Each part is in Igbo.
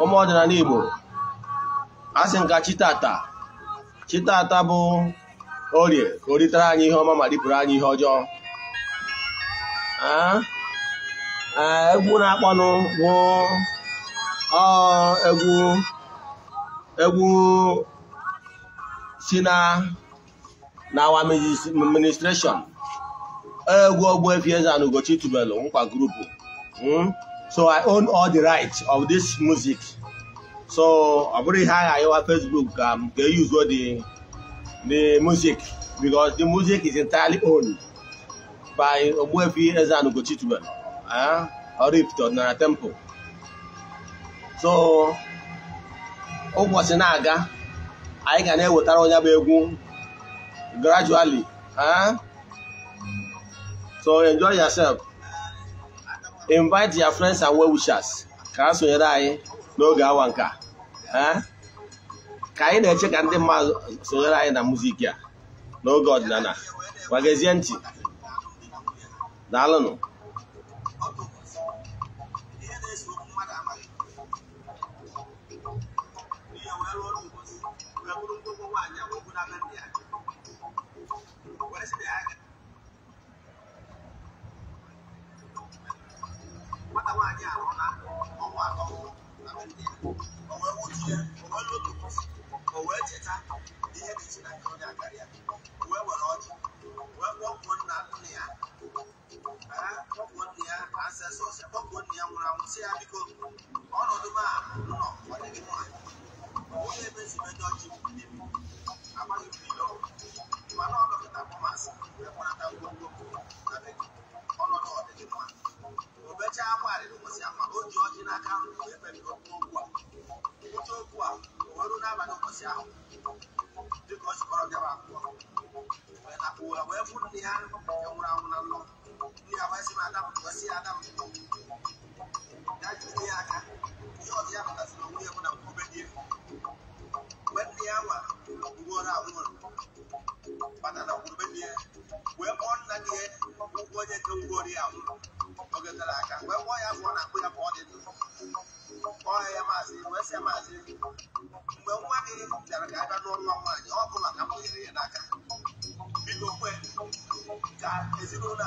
ụmụ ọdịnala Igbo a sị nka chitata chitata bụ orie ka anyị ihe ọma ma ripụrụ anyị ihe ọjọọ egwu na-akpọnụ bụ egwu egwu si na n'awa egwu Ogbuefi Eze-Ana tubelu nkwa grupu hmm? So I own all the rights of this music. So I put I high on Facebook. Um, they use all the the music because the music is entirely owned by Obuefi Ezan Ugochitube, uh, or if to Nara Temple. So ụbọchị na-aga anyị ga na-ewetara onye bụ egwu gradually uh? so enjoy yourself invite your friends and well-wishers ka ha sonyere anyị n'oge awa nka ka anyị na-eche ka ndị mmadụ sonyere anyị na muziki a n'oge ọdịnala gwagezie ntị daalụnụ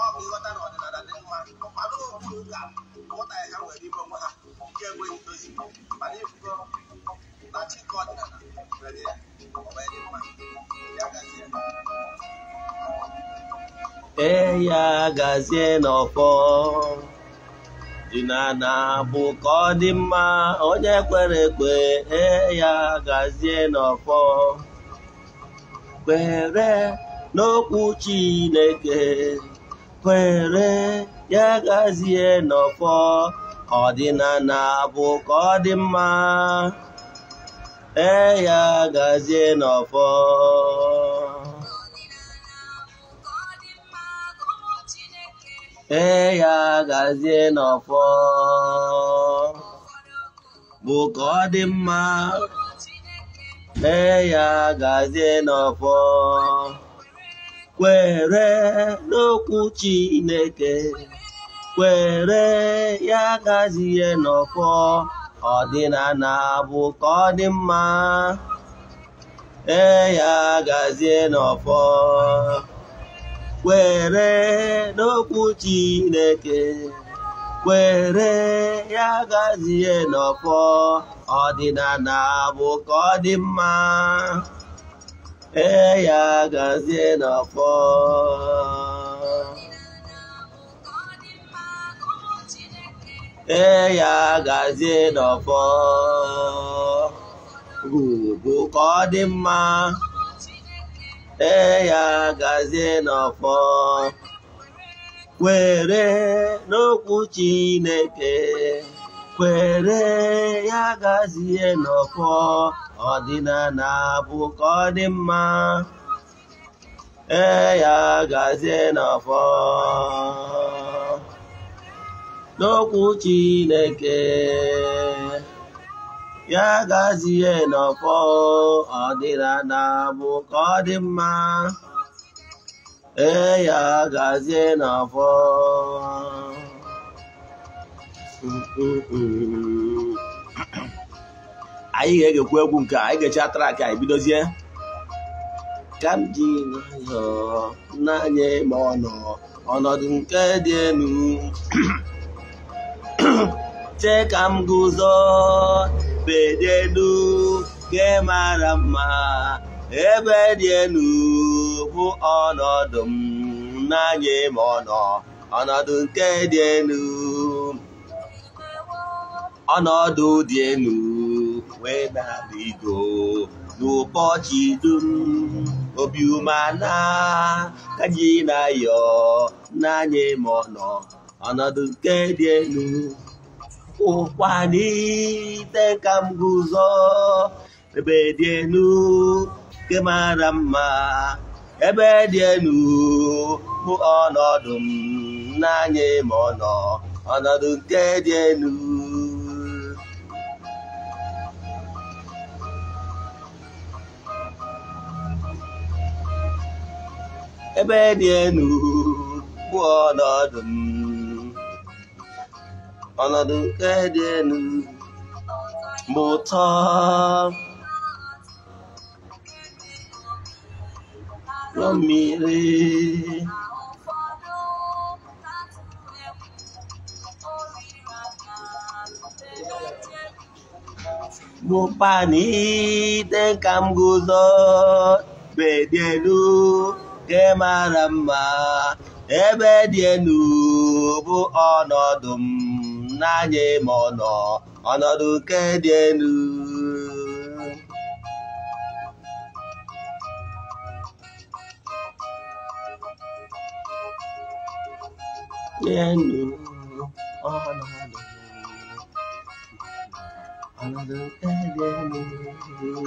ọ bụ ịghọta na ọdịnala dị mma mana ha nwere na nwere ya dị mma ya gazie e gazie n'ọkpọ bụ ka ọ dị mma onye kwere ekwe eya gazie n'ọkpọ kwere n'okwu Chineke kwere ya gazie n'ọfọ ka ọdịnala bụ ka ọ dị mma ee ya gazie n'ọfọ ee ya gazie n'ọfọ bụ ka ọ dị mma ee ya gazie n'ọfọ kwere n'okwu Chineke kwere ya gazie n'ọfọ ọdịnala bụ ka ọ dị mma ee ya gazie n'ọfọ kwere n'okwu Chineke kwere ya gazie n'ọfọ ọdịnala bụ ka ọ dị mma ee ya gazie n'afọ ee ya gazie n'afọ ugwu ka ọ dị mma ee ya gazie n'afọ kwere n'okwu Chineke kwere ya gazie n'afọ Adina na dị mma gazi ya fa n'ọfọ n'okwu Chineke ya Adina na ọdịnala bụkọ dị mma ee ya gazie n'ọfọ anyị ga-egekwa egwu nke anyị ga-eji atara ka anyị bidozie ka m ji n'anya ma ọ nọ ọnọdụ nke dị elu chee ka m guzo bedị elu nke mara mma ebe dị elu bụ ọnọdụ m n'anya ma ọ nọ ọnọdụ nke dị elu ọnọdụ dị elu wee na-adịgo n'ụbọchị dum obi umana ka anyị na-ayọ n'anya ma ọ nọ ọnọdụ nke dị elu ụkwa n'ite ka m guzo ebe dị elu nke mara mma ebe dị elu bụ ọnọdụ m n'anya ma ọ nọ ọnọdụ nke dị elu ebe dị elu bụ ọnọdụ m ọnọdụ nke dị elu bụ ụtọ na mmiri bụkwa n'ide ka m guzo bedelu nke mara mma ebe dị enu bụ ọnọdụ m n'anya ma ọ nọ ọnọdụ nke dị enu enu ọnọdụ ọnọdụ nke dị enu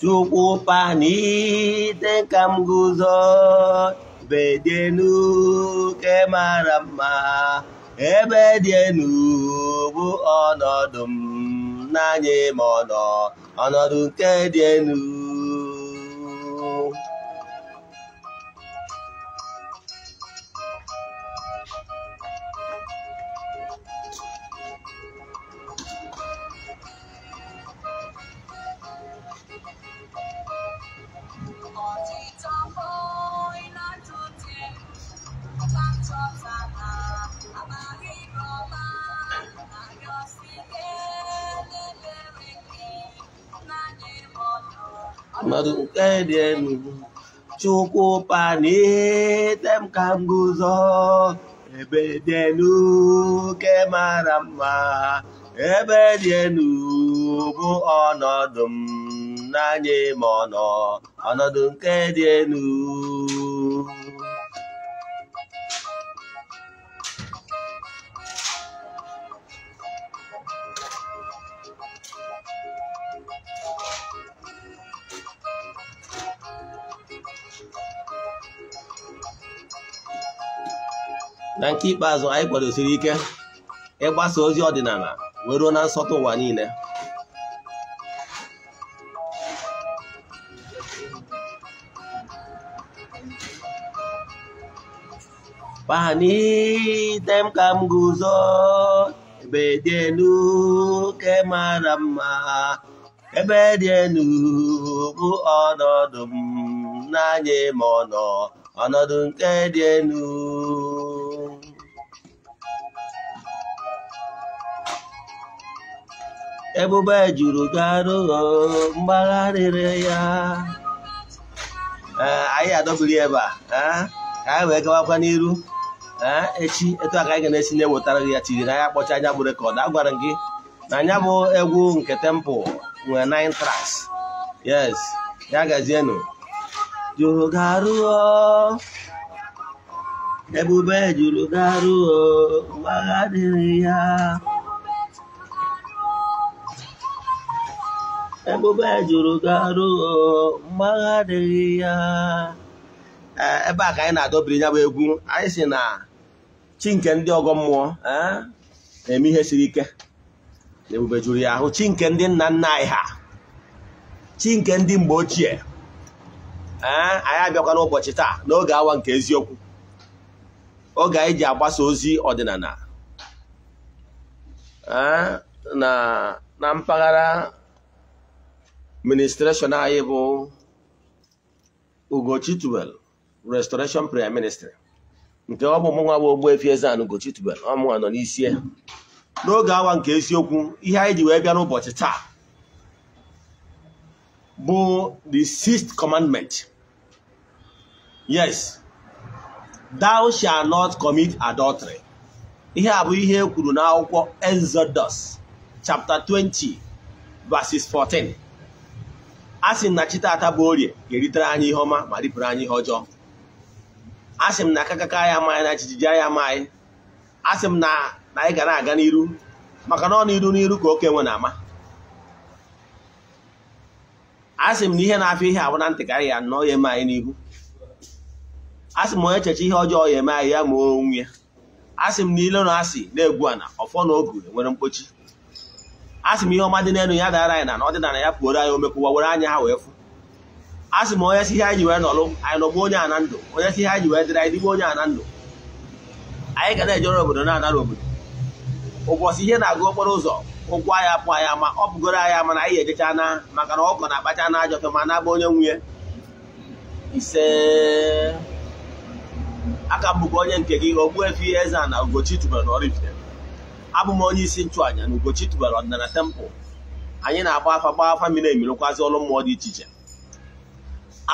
chukwupani ite ka m guzo bedenu ke mara mma ebe dị enu bụ ọnọdụ m n'anya ma ọnọdụ nke dị Chukwuka n'ihe tem ka m guzo ebe dị enu nke mara mma ebe dị enu bụ ọnọdụ m n'anya ma ọnọ ọnọdụ nke dị enu À? À. na nke ikpeazụ anyị kwadosiri ike ịgbasa ozi ọdịnala wee ruo na nsọtụ ụwa niile kpanite m ka m guzo ebe dị elu ke mara mma ebe dị elu bụ ọnọdụ m n'anya ma ọ nọ ọnọdụ nke dị elu ebube juru gị arụ mgbagharịrị ya eh, ado buli eh, eba a ka we wee kwa n'iru echi eh, etu a ka anyị ga na si ne wotara gị ya tiri na ya kpocha nya bu record agwara gị na nya nah, bu egwu nke tempo nwere nine tracks yes ya gazienụ oh. juru garu, eh oh. ebube juru garu arụ oh. mgbagharịrị ya ebube jụrụ garụ mgbagha adịghị ya e, ebe a ka anyị na-adọbiri ya bụ egwu anyị si na chi nke ndị ọgọ mmụọ e, na-eme ihe siri ike ebube jụrụ ya ahụ chi nke ndị nna nna anyị ha chi nke ndị mgbe ochie e, anyị abịakwa n'ụbọchị taa n'oge awa nke eziokwu oge anyị ji agbasa ozi ọdịnala na mpaghara ministreshọn anyị bụ Ugochi restoration prayer ministry nke ọ bụ mụnwa bụ Ogbuefi Eze-Ana Ugochi ọmụnwa nọ n'isi n'oge awa nke eziokwu ihe anyị ji wee bịa n'ụbọchị taa bụ the sixth commandment yes thou shall not commit adultery ihe a bụ ihe e kwuru n'akwụkwọ Exodus chapter 20 verses 14 a sị m na chi taata bụ orie ga-eritere anyị ihe ọma ma ripụrụ anyị ihe ọjọọ a sị m na akakaka anyị amaghị na chijiji anyị amaghị a sị m na anyị ga na-aga n'iru maka na ọ n'iru n'iru ka oke nwe na-ama a sị m na ihe na-afịa ihe abụ na ntị ka anyị ga anọ ya eme anyị n'ihu a sị m onye cheche ihe ọjọọ ya eme anyị ya ma onwe ya a sị m na ile na asị na-egwu ana ọfọ na ogu enwere mkpochi asị m ihe ọma dị n'elu ya dara anyị na na ọdịnala ya pụoro anyị omekụwa were anya ha wee fụ asị m onye si ihe anyị wee nọlụ anyị nọgbu onye a na ndụ onye si ihe anyị wee dịrị anyị dịgbu onye a na ndụ anyị ga na-ejere obodo na-anara obodo ụbọchị ihe na-agụ okporo ụzọ ụkwụ anya pụ anya ma ọ bụgoro anya mana anyị ejecha na maka na ọkọ na-akpacha na ajọ ma na-agba onye nwunye ise aka mbụkọ onye nke gị Ogbuefi eze na Ugochi tubelu n'Ọraifite abụ m onye isi nchụàja na Ugochi tubara ọdịnala tempụl anyị na-agba afa gba afa mmiri emirụkwazị ọrụ mmụọ dị iche iche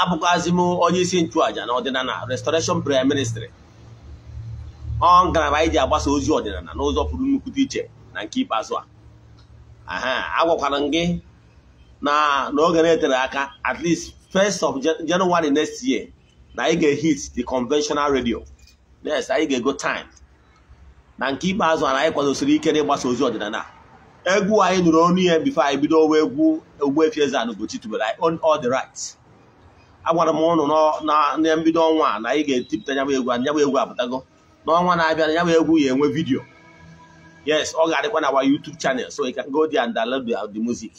abụkwazị m onye isi nchụàja na ọdịnala restoration prayer ministry ọ ngalaba anyị ji agbasa ozi ọdịnala n'ụzọ pụrụ nnukwu dị iche na nke ikpeazụ a agwakwara m gị na n'oge na-etere aka at least first of January next year na anyị ga-ehit the conventional radio next anyị ga-ego time na nke ikpeazụ a anyị kwadosiri ike ịgbasa ozi ọdịnala egwu anyị nụrụ ọnụ ihe bifo anyị bido owe egwu Ogbuefi Eze-Ana Ugochi tubelu anyị on all the right agwara m ụnụ na mbido ọnwa na anyị ga-etipụta nyabụ egwu anyabụ egwu apụtago n'ọnwa na-abịa na nyabụ egwu ya enwe vidiyo yes ọ ga-adịkwa na our YouTube channel so you can go there and download the music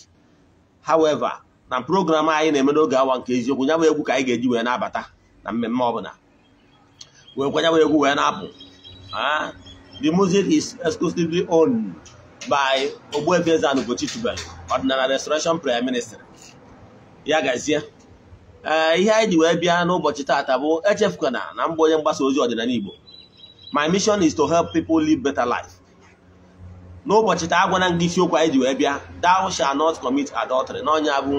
however na program anyị na-eme n'oge awa nke eziokwu nyabụ egwu ka anyị ga-eji wee na-abata na mmemme ọbụla wee kwa nyabụ egwu wee na-apụ ah. The music is exclusively owned by Ogbuefiezana Ugochi Tubelu, ọdịnala restoration prime minister. Ya gazie ee eh, ihe anyị ji wee bịa n'ụbọchị taata bụ echefukwana na mbụ onye mgbasa ozi ọdịnala Igbo my mission is to help people live better life. n'ụbọchị taa agwana gị isiokwu anyị ji wee bịa thou shall not commit adultery n'ọnya bụ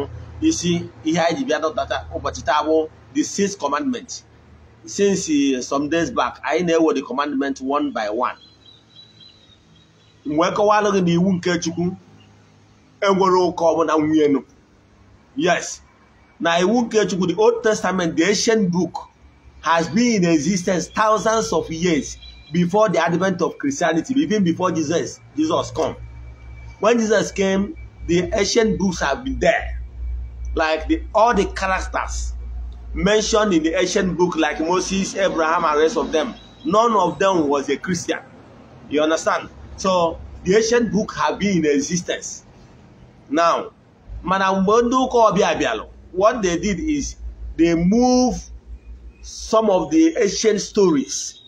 isi ihe anyị ji bịa dọtata ụbọchị taa bụ the sixth commandment since some days back anyị na-ewe the commandment one by one. mgbe e kọwalụ gị iwu nke chukwu enwere ọbụla nwunye nụ yes na iwu nkechukwu chukwu the old testament the ancient book has been in existence thousands of years before the advent of christianity even before jesus jesus come when jesus came the ancient books have been there like the, all the characters mentioned in the ancient book like moses abraham and rest of them none of them was a christian you understand So the ancient book have been in existence. Now, Madam Bonduko what they did is they moved some of the ancient stories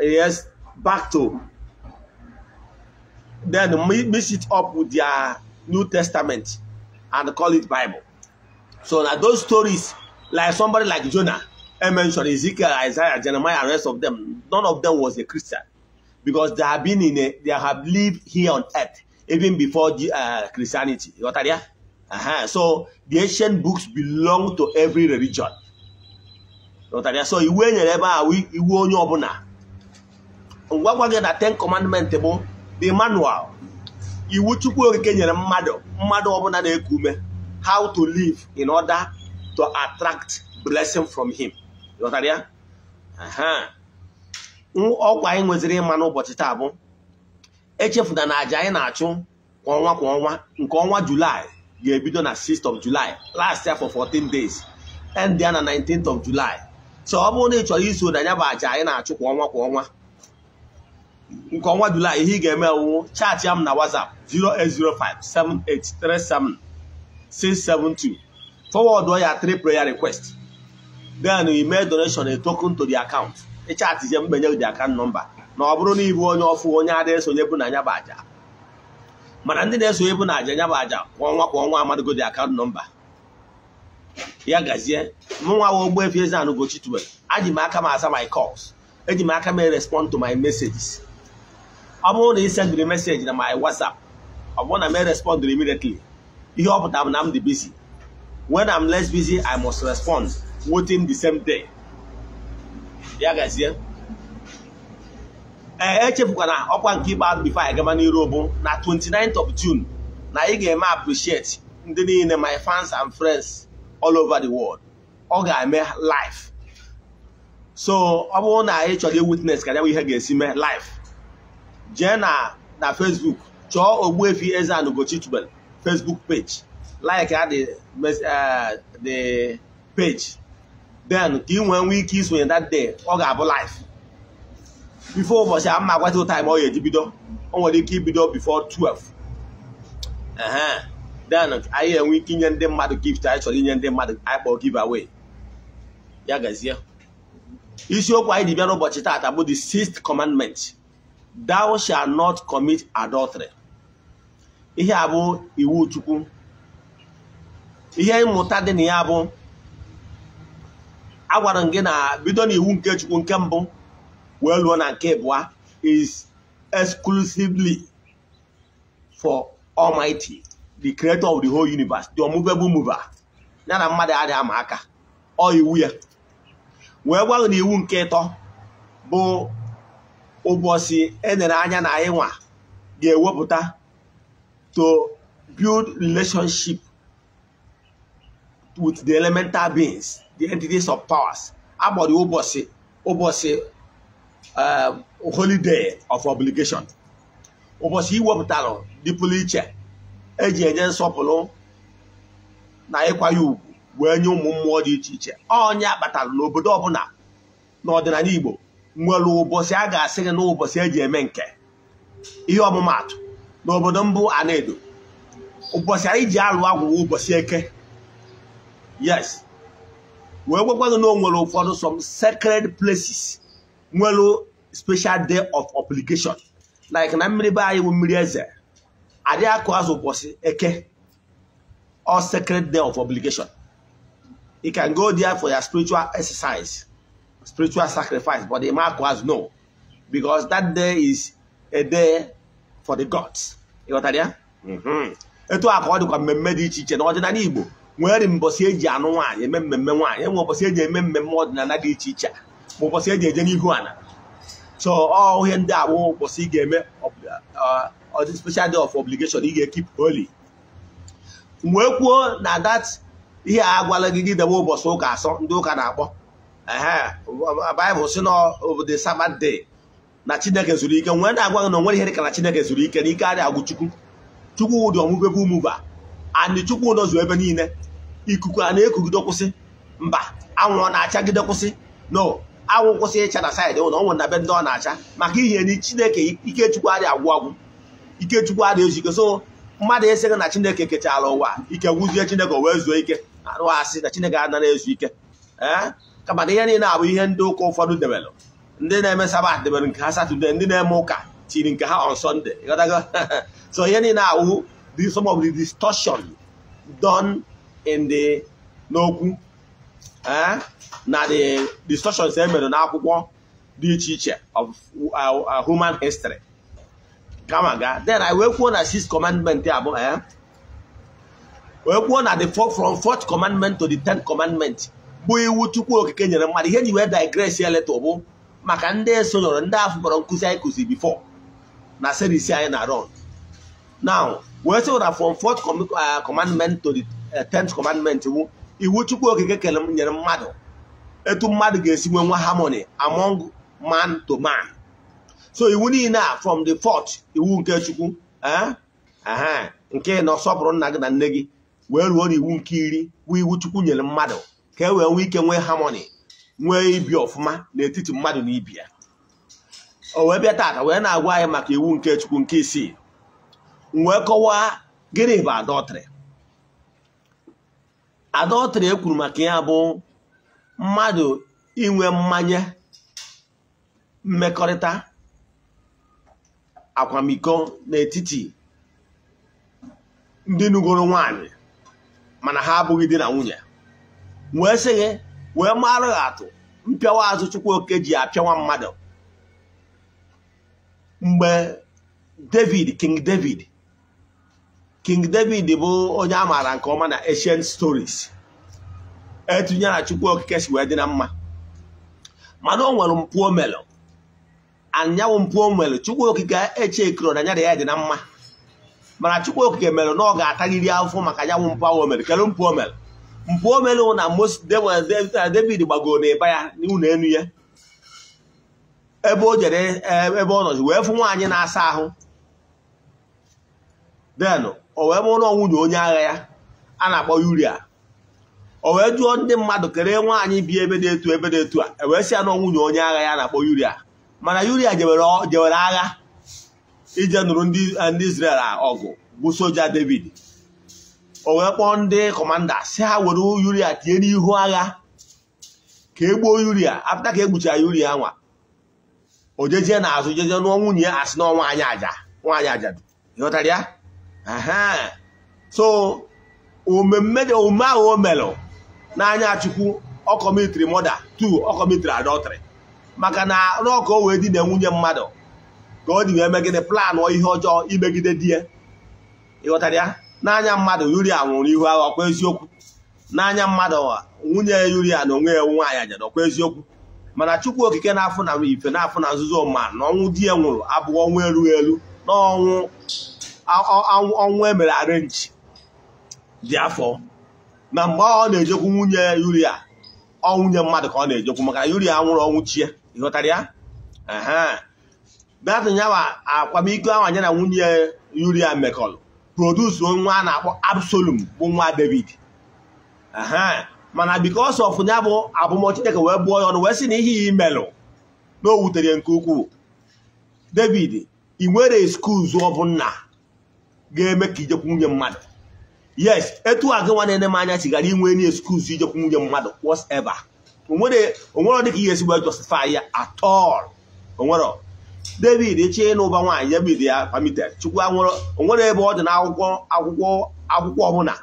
yes back to then mix it up with their New Testament and call it Bible. So that those stories, like somebody like Jonah, I mentioned Ezekiel, Isaiah, Jeremiah, and rest of them, none of them was a Christian. because they have been in a, they have lived here on earth even before uh, Christianity. You got that? Uh-huh. So the ancient books belong to every religion. You got that? So iwu enyere ebe a iwu onye ọbụla. ngwa gị na ten commandments bụ the manual. Iwu Chukwu Okike nyere mmadụ mmadụ ọbụla na-eku ume how to live in order to attract blessing from him. You got that? Uh-huh. ọkwa anyị nweziri ịma n'ụbọchị taa bụ echefuna na aja anyị na-achụ kwa ọnwa kwa ọnwa nke ọnwa julaị ga-ebido na 6th of July last year for 14 days end ya na 19th of July so ọ bụrụ na ị chọrọ iso na ya bụ aja anyị na-achụ kwa ọnwa kwa ọnwa nke ọnwa julaị ihe ị ga-eme wụ chaatị m na WhatsApp 08057837672 forward ya 3 prayer request then you make donation a token to the account ịchatizie mgbenye di akant nọmba na ọ bụrụ na ịbụ onye ọfụ onye ada esonye bụ na bụ aja mana ndị na-esonye bụ na aja anya bụ aja kwa ọnwa kwa ọnwa amadịgodi akant nọmba ya gazie mụnwa wa Ogbuefi Eze-Ana Ugochi aji m aka m asa my calls eji m aka m respond to my messages ọ bụrụ na ị sendịrị meseji na my WhatsApp ọ bụrụ na m respondịrị immediately ihe ọ pụtara m na m dị busy wen am less I must respond within the same day ya gazie ee echefukwana ọkwa nke ikpeazụ bifo anyị gama n'iru bụ na 29th of June na ị ga-eme appreciate ndị niile my fans and friends all over the world ọ ga-eme live so ọ bụrụ na ị chọrọ witness ka ya ihe ga-esi mee live jee na na Facebook chọọ Ogbuefi Eze-Ana Ugochi Facebook page like the dị eh, page then ka ị nwee nwee ike isonye that day ọ ga-abụ life before ụbọchị a mma agwatị time ọ ya eji bido o nwere ike ibido before 12 then anyị enwe ike inye ndị mmadụ gift anyị chọrọ inye ndị mmadụ anyị kpọọ giveaway ya gazie isiokwu anyị dị bịara ụbọchị taata bụ the sixth commandment thou shall not commit adultery ihe a bụ iwu chukwu ihe mmụta dị na ya bụ agwara m gị na bido na nke chukwu nke mbụ wee lụọ na nke abụọ is exclusively for almighty the creator of the whole universe the unmovable mover ya na mmadụ a ama aka ọ iwu ya wee gwa na iwu nke ịtọ bụ ụbọchị enere anya na anyị nwa ga-ewepụta to build relationship with the elemental beings the entities of powers agbọrọ ụbọchị ụbọchị um, holiday of obligation ụbọchị iwepụtara dị pụrụ iche eji enye nsọpụrụ na ịkwanye ugwu wee nye ụmụ mmụọ dị iche iche onye akpatara n'obodo ọbụla n'ọdịnala Igbo nwere ụbọchị a ga-asị gị na ụbọchị eji eme nke ihe ọmụmaatụ n'obodo mbụ Anedo ụbọchị anyị ji alụ agwụ ụbọchị eke yes wee gwakwanụ na o nwere ụfọdụ some sacred places nwere special day of obligation like na mmiri be anyị bụ mmiri eze adị akụ azụ ụbọchị eke all sacred day of obligation you can go there for your spiritual exercise spiritual sacrifice but the mark was no because that day is a day for the gods ịghọtara ya mm-hmm. etu a ka ọ dịkwa mmemme dị iche iche n'ọdịnala Igbo nwere mbọsi eji anụ nwaanyị eme mmemme nwaanyị enwe ụbọchị eji eme mmemme ọdịnala dị iche iche ma ụbọchị eji eje n'ihu ala so ihe ndị abụ ụbọchị ị ga-eme special day of obligation ị ga-ekip holy wee kwuo na dat ihe a gwala gị gị debe ụbọchị ụka asọ ndị ụka na-akpọ bịbụl si na e the Sabbath na chineke zuru ike nwere na-agwa gị na onwere ihe dịka na chineke zuru ike na ike adịghị agwụ chukwu chukwu ụdị ọmụgwebe ụmụba chukwu ụdọ ebe niile ikuku a na-ekugide kwụsị mba anwụ ọ na-achagide kwụsị no anwụ kwụsị ịcha na saịdị ụlọ ọnwụ na be ndị ọ na-acha maka ihe na chineke ikechukwu adị agwụ agwụ ikechukwu adịghị ezike so mmadụ esighị na chineke kechara ụwa ike gwụzie chineke wee zuo ike arụ asị na chineke anara ezu ike ee eh? kama ihe niile abụ ihe ndị ụka ụfọdụ debelụ ndị na-eme sabat debere nke ha satọde ndị na-eme ụka tiri nke ha on sọnde so ihe niile awụ some distọshọn the in the n'okwu eh na the discussions e mere n'akwụkwọ dị iche iche of uh, uh, human history kama ga then i wee kwuo na six commandment abụ eh, wee kwuo na the from fourth commandment to the tenth commandment bụ iwu Chukwu Okike nyere mmadụ ihe ji wee leta bụ maka ndị sonyere ndị afọ kpọrọ nkụzi anyị kụzi before na serisi anyị na run now wee sị na from fourth uh, commandment to the Eh, tenth commandment iwu iwu chukwu okike kere nyere mmadụ etu mmadụ ga-esi nwe nwa harmony among man to man so iwu niile a from the fourth iwu nke chukwu eh, nke na ọsọpụrụ nna gị na nne gị wee ruo n'iwu nke iri bụ iwu chukwu nyere mmadụ ka e wee nwee ike nwee harmony nwee ibi ọfụma n'etiti mmadụ na ibi o wee bịa taata wee na-agwa anyị maka iwu nke chukwu nke isii wee kọwaa gịnị bụ adọtrị e ekwuru maka ya bụ mmadụ inwe mmanya mmekọrịta akwamiko n'etiti ndị nugoro nwanyị mana ha abụghị di na nwunye wee sị gị wee marụ ha atụ mpịawa azụ Chukwuoke ji apịawa mmadụ mgbe David King David king david bụ onye a maara nke ọma na ancient stories etunyere chukwu okike si wee dị na mma mana o nwere mpụ omelu anyanwụ mpụ omelu chukwu okike eche kiro na nyara ya dị na mma mana chukwu okike mere na ọ ga-ataghịrị afọ maka anyanwụ mpụ ahụ omelu kedu mpụ omelu mpụ na mos david gbagoro na ya n'ụlọ enu ya ebe o jere e, ebe ọ nọzi wee fụ nwaanyị na-asa ahụ then o wee mụrụ nwunye onye agha ya a na-akpọ yuria o wee jụọ ndị mmadụ kere nwaanyị bi ebe dị etu ebe etu a e wee sị ya nwunye onye agha ya na-akpọ yuria mana yuria jewere agha ije nụrụ ndị eh, Israel ọgụ bụ soja David o wee kpọọ ndị kọmanda si ha were yuria tinye n'ihu agha ka e gbuo yuria apụta ka e gbuchara yuria nwa o jejee n'azụ jejee nụọ nwunye ya asị na nwaanyị aja nwaanyị ajadu ya so omeme dị omume ahụ o melụ n'anya chukwu ọ kọmitiri mọda tu ọ maka na n'ọka o wee dị na nwunye mmadụ ka ọ dị wee megide planụ ihe ọjọọ imegide di ya ịghọtara ya n'anya mmadụ yuri nwụrụ ihu agha ọkwa eziokwu n'anya mmadụ nwunye ya yuri na onwe ya nwaanyị ajada ọkwa eziokwu mana chukwu okike na-afụ na ife na-afụ na nzuzo ma na ọnwụ di ya nwụrụ abụghị ọnwụ erughị elu na ọnwụ ọnwụ emere arenji dị afọ na mgbe ọ na-ejekwu nwunye yuria ọ nwunye mmadụ ka ọ na-ejekwu maka yuria nwụrụ ọnwụ chie ịghọtara ya datin yawa akwamiko ahụ anya na nwunye yuria mekọlụ produsu nwa a na-akpọ Absalom bụ nwa David mana because of ya bụ abụmọ Chineke wee bụọ ya ọnụ wee sị na ihe ya imelụ na o wutere nke ukwuu David ị nwere skuls ọbụ bụ nna ga-eme ka ijekwu nwunye mmadụ yes etu a gị nwa na-ene m anya chigara inwe enyi excuse ijekwu nwunye mmadụ whatever onwere dịka ihe ezigbo justify ya at all onwero david eche ịnụ ụba nwaanyị ya bid ya permitted chukwu anwụrụ onwere ebe ọ dị na akwụkwọ akwụkwọ eh? akwụkwọ ọbụla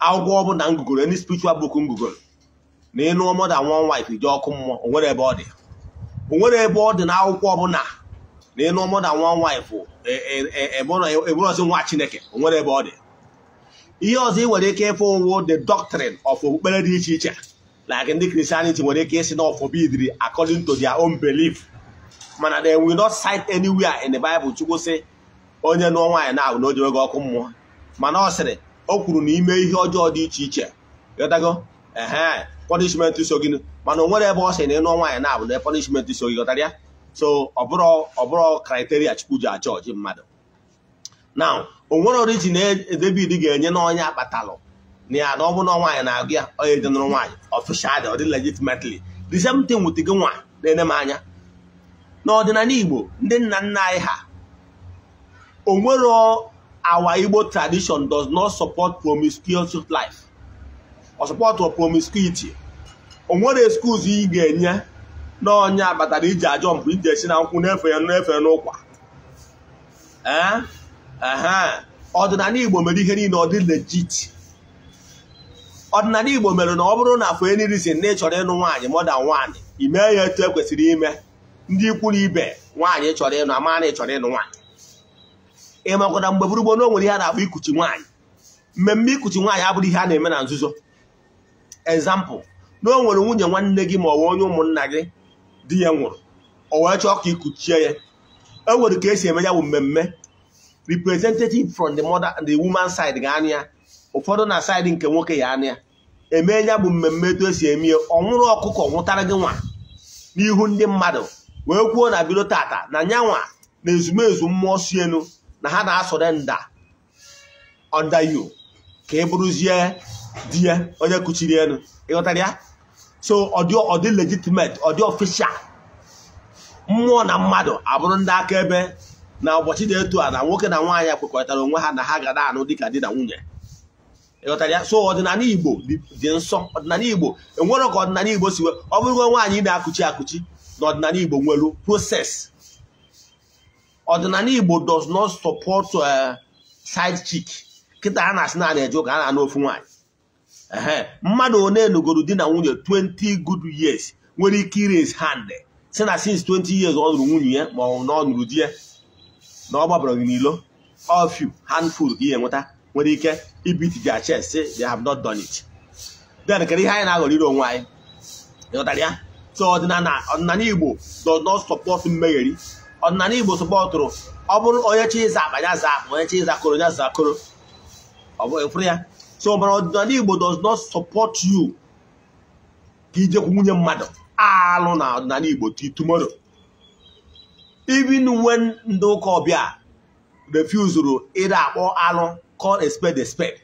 akwụkwọ ọbụla ngụgoro ndị spiritual book ngụgoro na ịnụ mother one wife jee ọkụ mmụọ onwere ebe ọ dị onwere ebe ọ dị na akwụkwọ ọbụla na ịlụ mụ na nwa nwaanyị bụ si nwa chineke o nwere ebe ọ dị ihe ọzọ ị nwere ike ịfụ owo the doctrine of okpukpere dị iche iche like ndị Christianity nwere ike ịsị na ọfọbidiri according to their own belief mana they will not cite anywhere in the Bible Chukwu si onye nụọ nwaanyị na-ahụ na o ji oge ọkụ mmụọ mana ọ sịrị o kwuru na ime ihe ọjọọ dị iche iche ghọtago ehe punishment so gị mana o nwere ebe ọ sị na ịnụọ nwaanyị na-ahụ na punishment so gị ghọtara ya so ọbụrụ ọbụrụ kriteria chukwu ji achọ ọjị mmadụ na onwere origin David ga-enye n'ọnya akpatalụ na ya na ọ bụ na nwaanyị na-agụ ya onye jenụrụ nwaanyị ọfishal ọ dị legitimately the same thing gị nwa na-ene m anya n'ọdịnala Igbo ndị nna nna anyị ha onwero awa Igbo tradition does not support promiscuous life ọ support promiscuity onwere excuse ị ga-enye na onye abatara iji ajọ mpụ iji esi na nkwụ na-efe n'efe n'ụkwa eh? ọdịnala Igbo mere ihe niile ọ dị legit ọdịnala Igbo mere na ọ bụrụ na for any si na ị chọrọ ịnụ nwaanyị mọda nwaanyị ime ya etu ekwesịrị ime ndị ikwu ibe nwaanyị chọrọ ịnụ ama na ị chọrọ ịnụ nwaanyị ị mgbe gburugburu na onwere ihe a na-akpọ ikuchi nwaanyị mmemme ikuchi nwaanyị abụrụ ihe a na-eme na nzuzo ezampụ na o nwere nwunye nwanne gị ma ọ bụ onye ụmụnna gị di ya nwụrụ o wee chọọ ka ikuchie ya e nwere ka esi eme ya bụ mmemme representative from the mother and the woman side ga anya ya ụfọdụ na side nke nwoke ya anụ ya eme ya bụ mmemme etu esi eme ya ọ nwụrụ ọkụkọ nwụtara gị nwa n'ihu ndị mmadụ wee kwuo na bido tata na nyanwa na ezumezu mmụọ si elu na ha na-asọrọ nda onda ka ị e bụrụzie di ya onye kuchiri elu ịghọtara ya so ọ dị ọ dị legitimate ọ dị official mmụọ na mmadụ abụrụ ndị akaebe na ụbọchị dị etu a na nwoke na nwaanyị kwekọrịtara onwe ha na ha ga na-anụ dịka di na nwunye ịghọtara ya so ọdịnala igbo dị nsọ ọdịnala igbo enwere ka ọdịnala igbo si ọ bụrụgo nwaanyị na-akụchi akụchi na ọdịnala igbo nwere proses ọdịnala igbo does not support eh, side chik kịta a na-asị naanị a eje ụka a na-anụ ofu nwaanyị ee mmadụ one lụgoro di na nwunye 20 good years nwere ike ires hand si na since 20 years ọ nụrụ nwunye ya ma ọ na ọ nụrụ di ya na ọ gbabara gị n'ilo of you handful ka ihe nweta nwere ike ibiti their chest say they have not done it then kedu ihe anyị na-aghọrọ ire onwe anyị ịghọtara ya so ọdịnala ọdịnala igbo does not support mmegheri ọdịnala igbo sọpọtụrụ ọ bụrụ onye chi ịza akpa ya za akpa onye chi koro ya za koro ọ bụ ịfụrụ ya so ọdịnala Igbo does not support you ka ijekwu nwunye mmadụ alụ na ọdịnala Igbo till tomorrow even when ndị ụka ọbịa refusuru ịra akpọ alụ call expect spade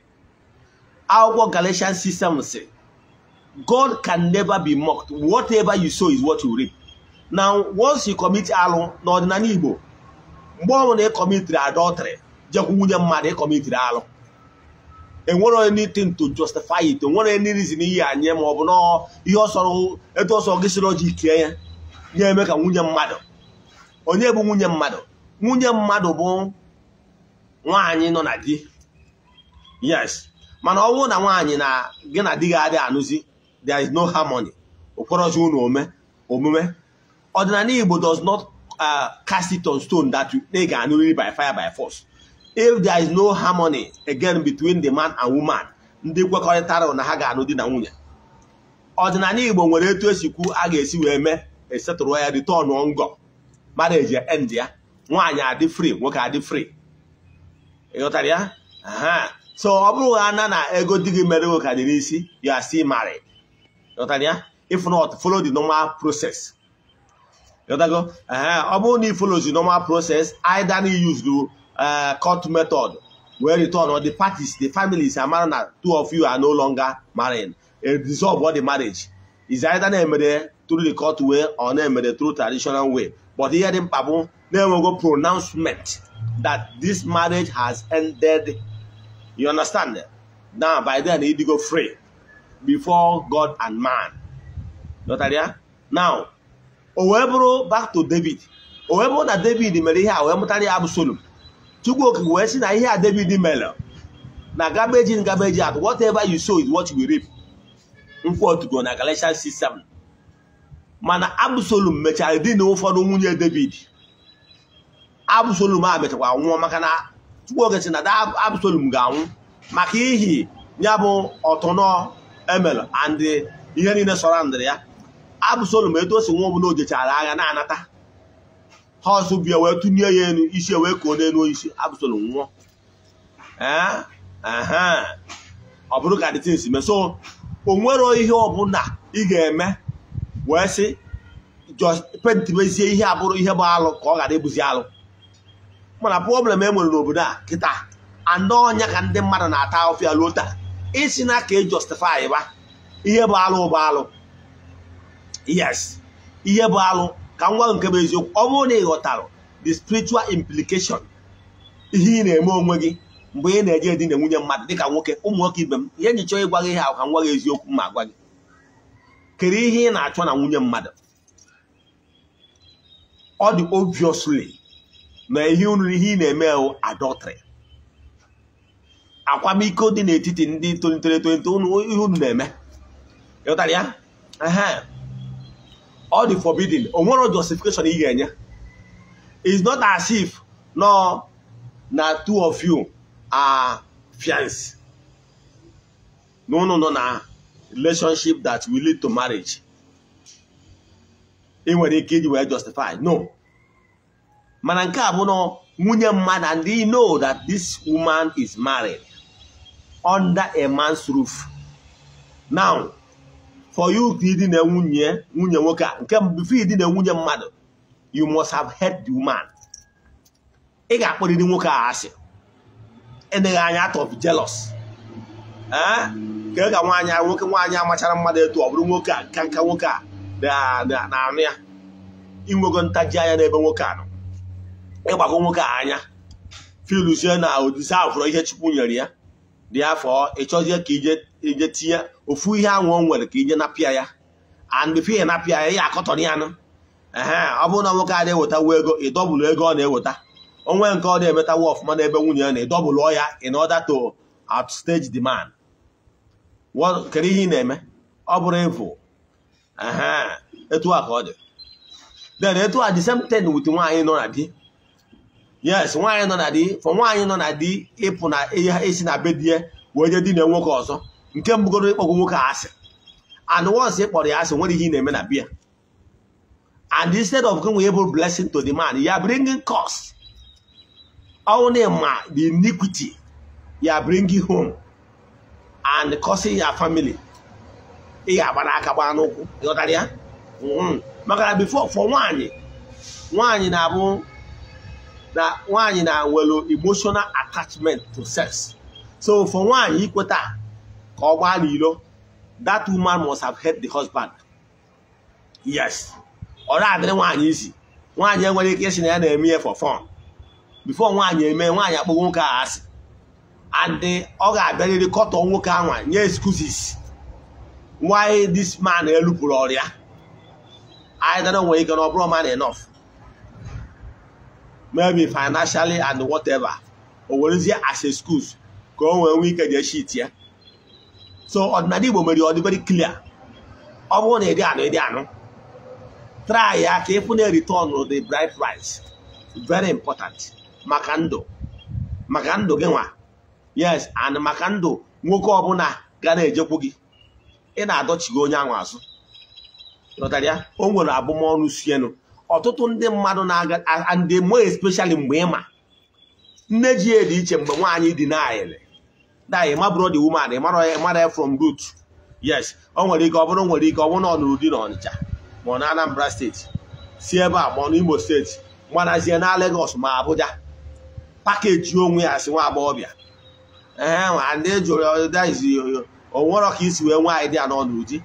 akwụkwọ galatian system sị God can never be mocked whatever you sow is what you reap now once you commit alụ na ọdịnala Igbo mgbe ọ bụla ị kọmitiri adọtrị jekwu nwunye mmadụ ị alụ enwere onye anything to justify it enwere any reason iyi anyị ma ọ bụ na ihe ọsọrọ etu ọsọ gị sịrị ọjị ike ya na-eme ka nwunye mmadụ onye bụ nwunye mmadụ nwunye mmadụ bụ nwaanyị nọ na di yes mana ọ bụrụ na nwaanyị na gị na di gị adịghị anụzi there is no harmony okporozi unu omume ọdịnala Igbo does not uh, cast it on stone that ị ga-anụrịrị by fire by force if there is no harmony again between the man and woman ndị kwekọrịtara na ha ga-anụ di na nwunye ọdịnala Igbo nwere etu esi kwu a ga-esi wee mee esetụrụ ya return ngọ mara eji end ya nwaanyị adị free nwoke adị free ịghọtara ya so ọ bụrụ ha na na ego di gị mere nwoke dị n'isi you are still married ịghọtara ya if not follow the normal process ịghọtago ọ bụrụ na ị follow the normal process either na use Uh, court method wey return or the parties the families amara na two of you are no longer married a dissolve all the marriage is either na-emere through the court way or na-emere through traditional way but ihe the mkpa bụ na-enwego pronouncement that this marriage has ended you understand now by then go free before God and man notaria now o wee bụrụ back to David o wee bụrụ na David mere ihe a wee mụtara ya Chukwuoke wee sị na ihe a David mere na gabeji in gabeji out whatever you sow is what you reap nkwotugo na Galatians 6:7 mana absolum mechara di na ụfọdụ nwunye David absolum a mechakwa nwụọ maka na Chukwuoke sị na Absalom ga-anwụ maka ihi ya bụ ọtụnọ emel and ihe niile sọrọ ndịrị ya Absalom etu o si nwụọ bụ na o jechara agha na-anata ha ọzọ bịa wee tụnye ya elu isi wee koo n'elu isi abụsoro nwụọ eh? ọ bụrụ ka dịtins mee so o nwero ihe ọbụla ị ga-eme wee sị mezie ihe abụrụ ihe bụ alụ ka ọ ghara ịbụzi alụ mana problem e nwere n'obodo a kịta anọ ọnya ka ndị mmadụ na-ata ọfịa luo taa isi na ka e justify ba ihe bụ alụ bụ alụ yes ihe bụ alụ ka ngwa gwa nke bụ eziokwu ọ bụrụ na ị ghọtara the spiritual implication ihe ị na-eme onwe gị mgbe ị na-eje di na nwunye mmadụ dịka nwoke ụmụ nwoke ibe m ihe nji chọọ ịgwa gị ha ka m gị eziokwu ma gwa gị kedu ihe ị na-achọ na nwunye mmadụ ọ dị obviously na ihe unu ihe ị na-eme hụ adultery akwamiko dị n'etiti ndị tolitere etolite ihe unu na-eme ịghọtara ya all the forbidden o nwere justification ị ga-enye it's not as if no na two of you are fiance no no no na relationship that will lead to marriage ị nwere ike iji wee justify no mana nke a bụ na nwunye mmadụ and they know that this woman is married under a man's roof now for you to na nwunye nwunye nwoke a nke before na nwunye mmadụ you must have hed the woman ị ga-akpọrịrị nwoke a asị enyeghị anya atọ of jealous eh? ka ka nwaanyị nwoke nwaanyị amachara mmadụ etu ọ bụrụ nwoke a nka nwoke a na-anụ ya inwego ntaji anya n'ebe nwoke a nọ ịgbago nwoke a anya filuzie na odise ahụ fụrụ ihe Chukwu nyere ya dị afọ ị chọzie ka ije ije tinye ofu ihe anwụ o nwere ka ije napịa ya and before napịa ya ya akọtọrọ ya nụ ehe ọ bụrụ na nwoke a na-ewetawo ego ịdọbụlụ ego ọ na-eweta onwe nke ọ na-emetawo ọfụma n'ebe nwunye ya na ịdọbụlụ ya in order to outstage the man kedu ihe ị na-eme ọ bụrụ ịvụ ehe etu a ka ọ dị then etu a the same thing with nwaanyị nọ na di yes nwaanyị nọ na di fọ nwaanyị nọ na di ịpụ na esi na be di ya wee je di na nwoke ọzọ nke mbụgoro ịkpọgwo nwoke asị and once ị kpọrọ ya asị nwere ihe ị na-eme na biya and instead of going able blessing to the man you are bringing curse na ma the iniquity you are bringing home and causing your family ị ga-agbara aka gbaa n'ụkwụ ịghọtara ya hmm. maka na before for nwaanyị nwaanyị na-abụ na nwaanyị na nwere emotional attachment to sex so for nwaanyị ikweta ka ọ gbaa n'ilo that woman must have helped the husband yes ọ na-adịrị nwaanyị isi nwaanyị enwere ike isi na ya na-eme ihe for fun before nwaanyị eme nwaanyị akpọgo nwoke ahụ asị and eh, ọ ga-abịarịrị kọtọ nwoke ahụ nye excuses why this man elupụrụ ọrịa anyị don't know ọ you can bro man enough maybe financially and whatever o werezie as a schools ka o nwee nwee ike jee ya so ọdịnala Igbo mere ọ dị very clear ọ bụrụ na ịdị anụ ịdị anụ try ya ka ịfụ na return the bright price very important maka ndụ maka ndụ gị nwa yes and maka ndụ nwoke ọbụla ga na-ejekwu gị ị na-adọchighị onye ahụ azụ o nwere abụmọnụ sienu ọtụtụ ndị mmadụ na-aga ndị mo especially mgbe ịma nne ji ya dị iche mgbe nwaanyị dị naịlị dayị mabụrụ dị woman ịmara from root yes ọ nwere ike ọ bụrụ nwere ike ọ bụrụ na ọ nụrụ di na Ọnịcha ma ọ na Anambra steeti si ebe a ma ọ n'Imo steeti gbanazie na legos ma Abuja pakeji onwe ya si nwa agbọghọbịa ee ndị jụrụ onwerọ ka isi wee nwaanyị dị ya n'ọnụ di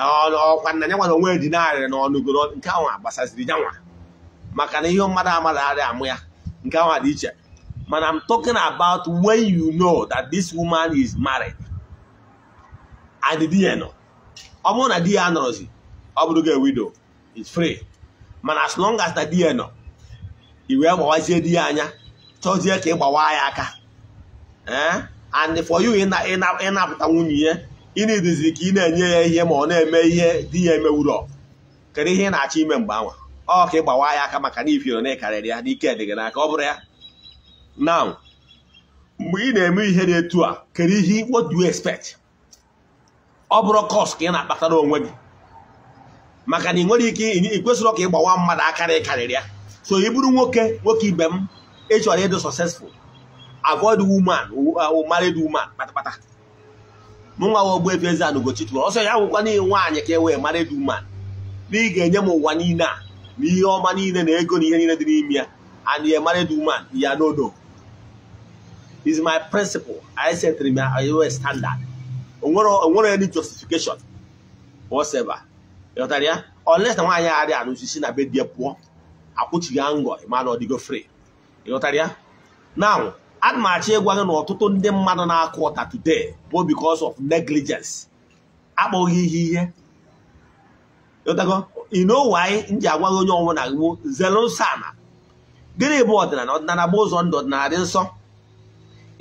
ọkwa nna ya nwara onwe dị narị na ọnụgoro nke ahụ gbasaziri nyanwa maka na ihe mmadụ amadụ arị amụ ya nke ahụ dị iche mana m talking about when you know that this woman is married and di ya nọ ọ bụrụ na di ya anọrọzi ọ bụrụ gị widow is free mana as long as na di ya nọ i wee gbawazie di ya anya chọzie ka ị gbawa ya aka and for you ịnapụta nwunye ya ị na-eduzi ka ị na-enye ya ihe ma ọ na-eme ihe di ya emewurọ kedu ihe ị na-achọ ime mgbe anwa ọ ka ị gbawa ya aka maka na ifiro na ekarịrị ya n'ike dị na n'aka ọ bụrụ ya na mgbe ị na-eme ihe dị etu a kedu ihe what do you expect ọ bụrụ kọs ka ị na-akpatara onwe gị maka na ị nwere ike ị kwesịrị ka ị gbawa mmadụ na karịrị ya so ị bụrụ nwoke nwoke ibe m ị chọrọ ịdị successful avoid woman uh, married woman kpatakpata mụ nwa wa Ogbuefi Eze-Ana Ugochi ọsọ ya nwụkwa n'ihe nwaanyị ka e wee mara dị na ị ga-enye m ụwa niile a na ihe ọma niile na ego na ihe niile dị n'ime ya and ya mara dị ya nodo is my principle I set my standard onwere any justification whatever ịghọtara ya unless na nwaanyị arịa anụzi si na be di ya pụọ akwụchighị ngọ ịma na ọ free ịghọtara ya now ana m achọ ịgwa gị na ọtụtụ ndị mmadụ na-akụ ụta today bụ because of negligence akpọghị ihe ihe ịnowe anyị nji agwa gị onye ọnwụ na gbo zelosana gịnị bụ ọdịnala ọdịnala bụ ụzọ ndụ ọdịnala dị nsọ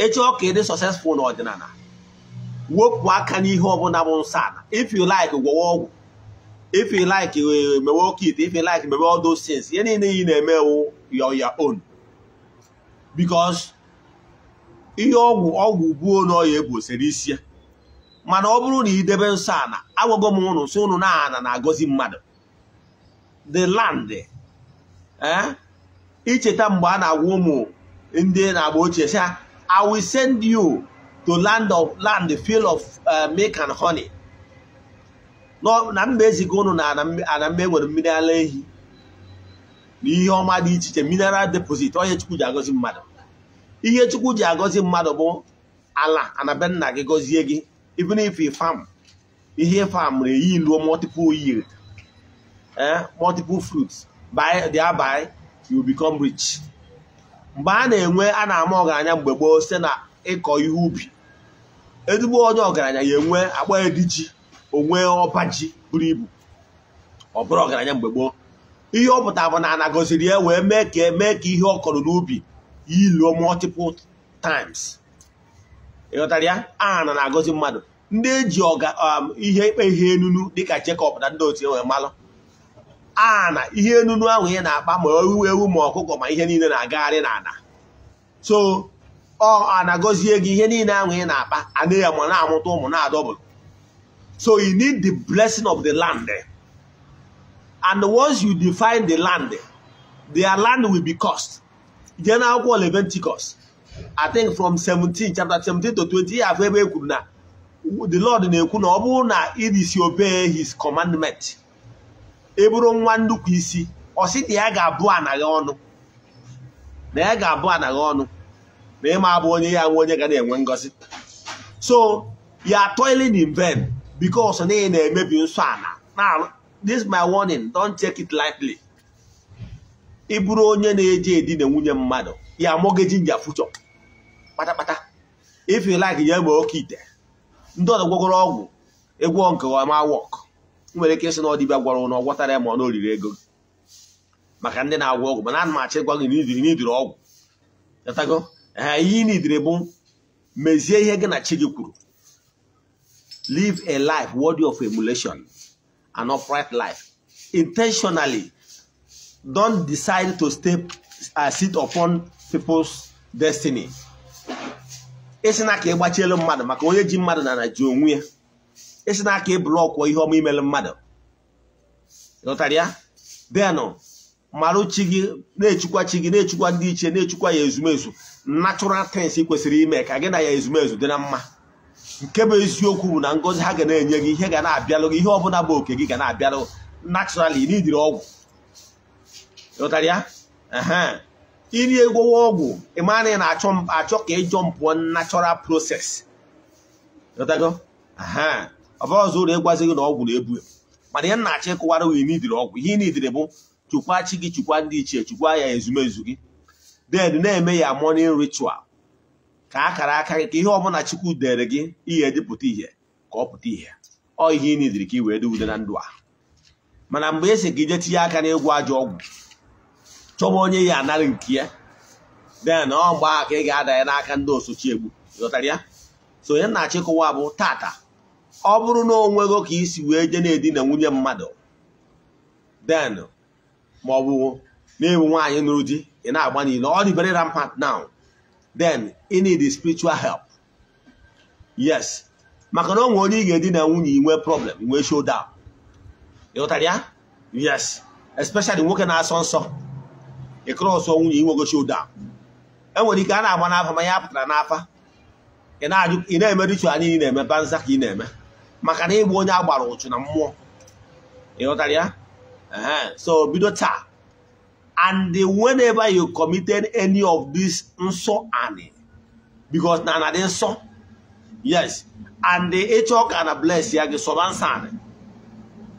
ịchọ ka dị successful na ọdịnala wepụ aka n'ihe ọbụla bụ nsọ ala if you like gwọwa ọgwụ if you like e, mewe okit if you like mewe all those ihe niile yi na-emewu your your own because ihe ọgwụ ọgwụ buo na ọya egbosiri isi ya mana ọ bụrụ na idebe nsọ ana agwago m ụnụ sị ụnụ na ana na-agọzi mmadụ the land eh? icheta mgbe a na-agwa ụmụ ndị na-agba ochie sị ha I will send you to land of land field of eh, milk and honey na mba eziga ụnụ na ana mba enwere mmiri ala ehi na ihe ọma dị iche iche mineral deposit onye chukwu ji agọzi mmadụ ihe chukwu ji agọzi mmadụ bụ ala anabe nna gị gọzie gị even if farm ihe farm na eyi luo multiple yield eh multiple fruits by thereby you become rich mgbe a na-enwe a na-ama ọgaranya mgbe gboo site na ịkọ ihe ubi ezigbo onye ọgaranya ya enwe akpa ediji onwe ọba ji buru ibu ọ bụrụ ọgaranya mgbe gboo ihe ọ pụtara bụ na anagoziri ya wee mee ka mee ka ihe ọ kọrọ n'ubi iluo multiple times ịghọtara ya aha na agọzi mmadụ ndị eji ọga um, ihe ikpe ihe enunu dịka Jekọb na ndị otu enwere malụ aha ihe enunu ahụ ihe na-akpa ma ewu ewu ma ọkụkọ ma ihe niile na-agagharị n'ala so ọ na-agọzie gị ihe niile ahụ na-akpa ana ya ma na-amụta ụmụ na-adọbụrụ so you need the blessing of the land and once you define the land their land will be cost. jee n'akwụkwọ leventicus I think from 17 chapter 17 to 20 ya afọ ebe e kwuru na the Lord na-ekwu na ọ bụrụ na i disobey his commandment ị bụrụ nwa nnukwu isi ọ sị na ya ga-abụ anaghị ọnụ na ya ga-abụ anaghị ọnụ na ịma abụ onye ya nwe onye ga na-enwe ngozi so ya toiling in vain because na ị na-emebi nsọ ala now this my warning don't take it lightly. ị bụrụ onye na-eji edina nwunye mmadụ ya mọgeji nja fuchọ kpatakpata ifilaki ya ma oke ite ndị ọzọ gwagoro ọgwụ egwu nke ọma wọk nwere ike ịsị na ọdịbịa gwara na ọgwọtara ya ma ọ na oriri ego maka ndị na-agwọ ọgwụ mana ana m achị gwa gị n'idiri ọgwụ chọtago ihe ị n'idiri bụ mezie ihe gị na chi gị kwuru live a life worthy of emulation and upright life intentionally don decide to step uh, sit upon people's destiny Isi na aka ịgbachielu mmadụ maka onye ji mmadụ na ji onwe ya esi na ka ịbụlọkwuo ihe ọma imelu mmadụ lọtara ya denụ marụchi gị na-echukwa chi gị na-echukwa ndị iche na-echukwa ya ezumezu natural things kwesịrị ime ka gị na ya ezumezu dị na mma nke bụ eziokwu bụ na ngọzi ha ga na-enye gị ihe ga na-abịalụ gị ihe ọbụla bụ oke gị ga na-abịalụ naturally n'idiri ọgwụ ịghọtara ya iri egwowa ọgwụ ịmara na ị na-achọ ka ịjọ mpụọ natural process ịghọtago ọ bụrụ ọzọ ị ịgwazi gị na ọgwụ na-ebu mana ị na-achọ ịkụwara wee n'idiri ọgwụ ihe n'idiri bụ chukwa chi gị chukwa ndị ichie chukwa ya ezumezu gị den na-eme ya morning ritual ka akara aka gị ka ihe ọbụla chukwu dere gị ihe dịpụta ihe ka ọ pụta ihe ọ ihe ị n'idiri ka ị wee dị na ndụ a mana mgbe esi gị je tinye aka n'ịgwọ ajọ ọgwụ chọba onye ya anara nke ya den ọ mgbe ka ị ga-ada ya n'aka ndị osochi egbu ịghọtara ya so onye na-achịkọwa bụ tata ọ bụrụ na onwego ka isi wee je na-edina nwunye mmadụ den maọbụ ọ na-ewu nwaanyị nụrụ di ị na-agba niile ọ dị very rampant now then ị need spiritual help yes maka na onwe onye ị ga-edina nwunye inwe problem nwee show down ịghọtara ya yes especially nwoke na-asọ nsọ ịkụrụ ọsọ nwunye inwegochi ụda e nwere ike a na-agba n'afa ma ya pụtara n'afa ị na-eme richual niile na-eme banza ka ị na-eme maka na ịgba onye agbara ụchụ na mmụọ ịghọtara ya so bido taa and whenever you committed any of this nsọ anị because na anadị nsọ yes and ịchọ ka na bless ya gị sọba nsọ anị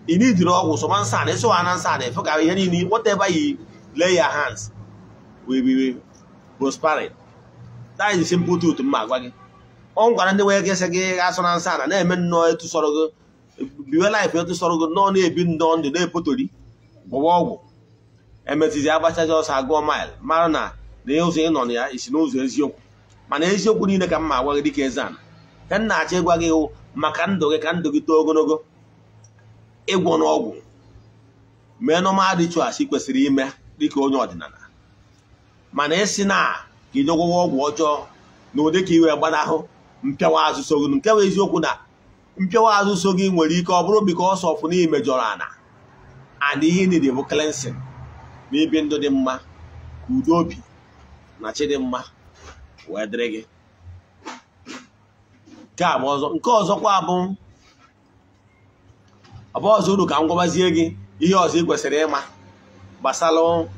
ị n'idiri ọgwụ sọba nsọ anị ịsọ ha na nsọ anị efe ka ihe niile whatever you lay your hands we be prospering that is the simple truth mma agwa gị ọ gwara ndị nwere kesị gị asọ na nsọ na na-eme nnọọ etu sọrọ gị biwe laịf etu sọrọ gị nọọ na-ebi nnọọ ndụ na-epotori gbọwa ọgwụ emetizi agbachazi ọsọ agụọ mil mara na na e ụzọ ịnọ nọ na ya isi n'ụzọ eziokwu mana eziokwu niile ka mma agwa gị dịka eze ana ka m na-achọ ịgwa gị hụ maka ndụ gị ka ndụ gị too ogologo ịgwọ n'ọgwụ mee normal rituals ị kwesịrị ime dịka onye ọdịnala mana ịsị na ka ị dogwụwa ọgwụ ọjọọ na ụdị ka iwe gbanahụ mpịawa azụ so gị nke bụ eziokwu na mpịawa azụ so gị nwere ike ọ bụrụ bika ọsọ ọfụ na imejọrọ ana ana ihe niile bụ cleansing na ibi ndụ dị mma ka udo obi na chi dị mma wee dịrị gị nke ọzọ ọzọkwa bụ ọzọ uru ka m gwabazie gị ihe ọzọ ị kwesịrị ịma gbasara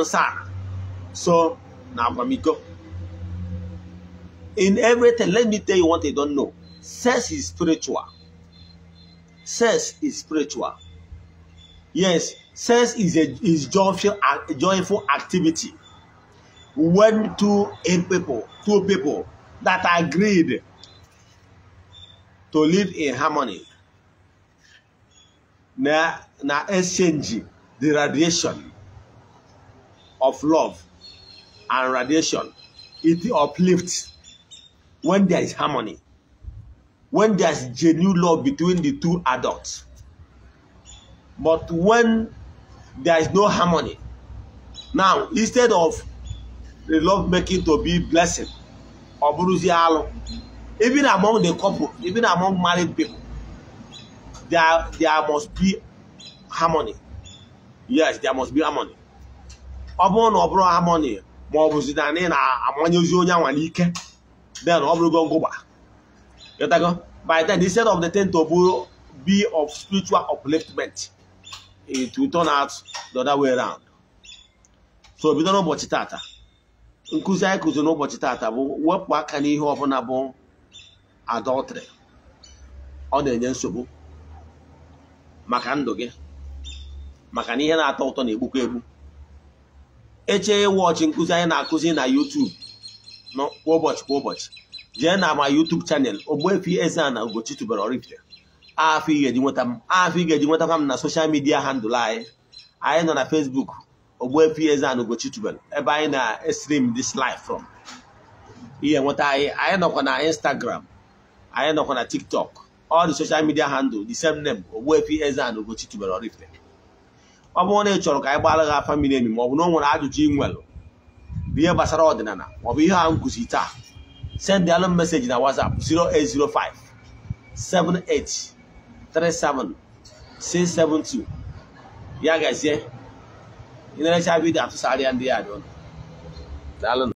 nsa so na akwamiko in everything let me tell you what they don't know sex is spiritual sex is spiritual yes sex is a is joyful a joyful activity when two in people two people that agreed to live in harmony na na exchange the radiation of love and radiation. It uplifts when there is harmony, when there is genuine love between the two adults. But when there is no harmony, now instead of the love making to be blessing or buruzialo, even among the couple, even among married people, there, there must be harmony. Yes, there must be harmony. ọ bụrụ na ọ bụrụ amoni ma ọ bụ na na-amanye onye anwa n'ike then ọ bụrụgo ngụba ịtago by then instead of the tent to be of spiritual upliftment it will turn out the other way round so bido n'ụbọchị tata nkụzi anyị kụziri n'ụbọchị tata bụ wepụ aka n'ihe ọbụla bụ adọltri. ọ na-enye nsogbu maka ndụ gị maka na ihe na-atọ ụtọ na-egbukwa egbu eche wọchị nkụzi anyị na-akụzi na YouTube kwa ụbọchị kwa ụbọchị jee na ma YouTube chanel Ogbuefi Eze-Ana Ugochi tubelu Oraifite afọ ị ga-eji nweta m afọ ị ga-eji nweta m na soshal midia handụl anyị anyị nọ na Facebook Ogbuefi Eze-Ana Ugochi tubelu ebe anyị na-stream dis live from ihe nweta anyị anyị nọkwa na Instagram anyị nọkwa na TikTok all the social midia handụl the same name Ogbuefi eze na Ugochi tubere Oraifite ọ bụrụ na ị chọrọ ka anyị gbara gị afa mmiri emi ma ọ na o nwere ajụjụ ị nwere ihe gbasara ọdịnala maọbụ ihe a nkụzi taa send m meseji na WhatsApp 0805 7837672 ya gazie ị na-erecha atụsarịa ndị ya dị ụlọ daalụ